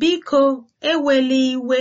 Biko, eweli iwe.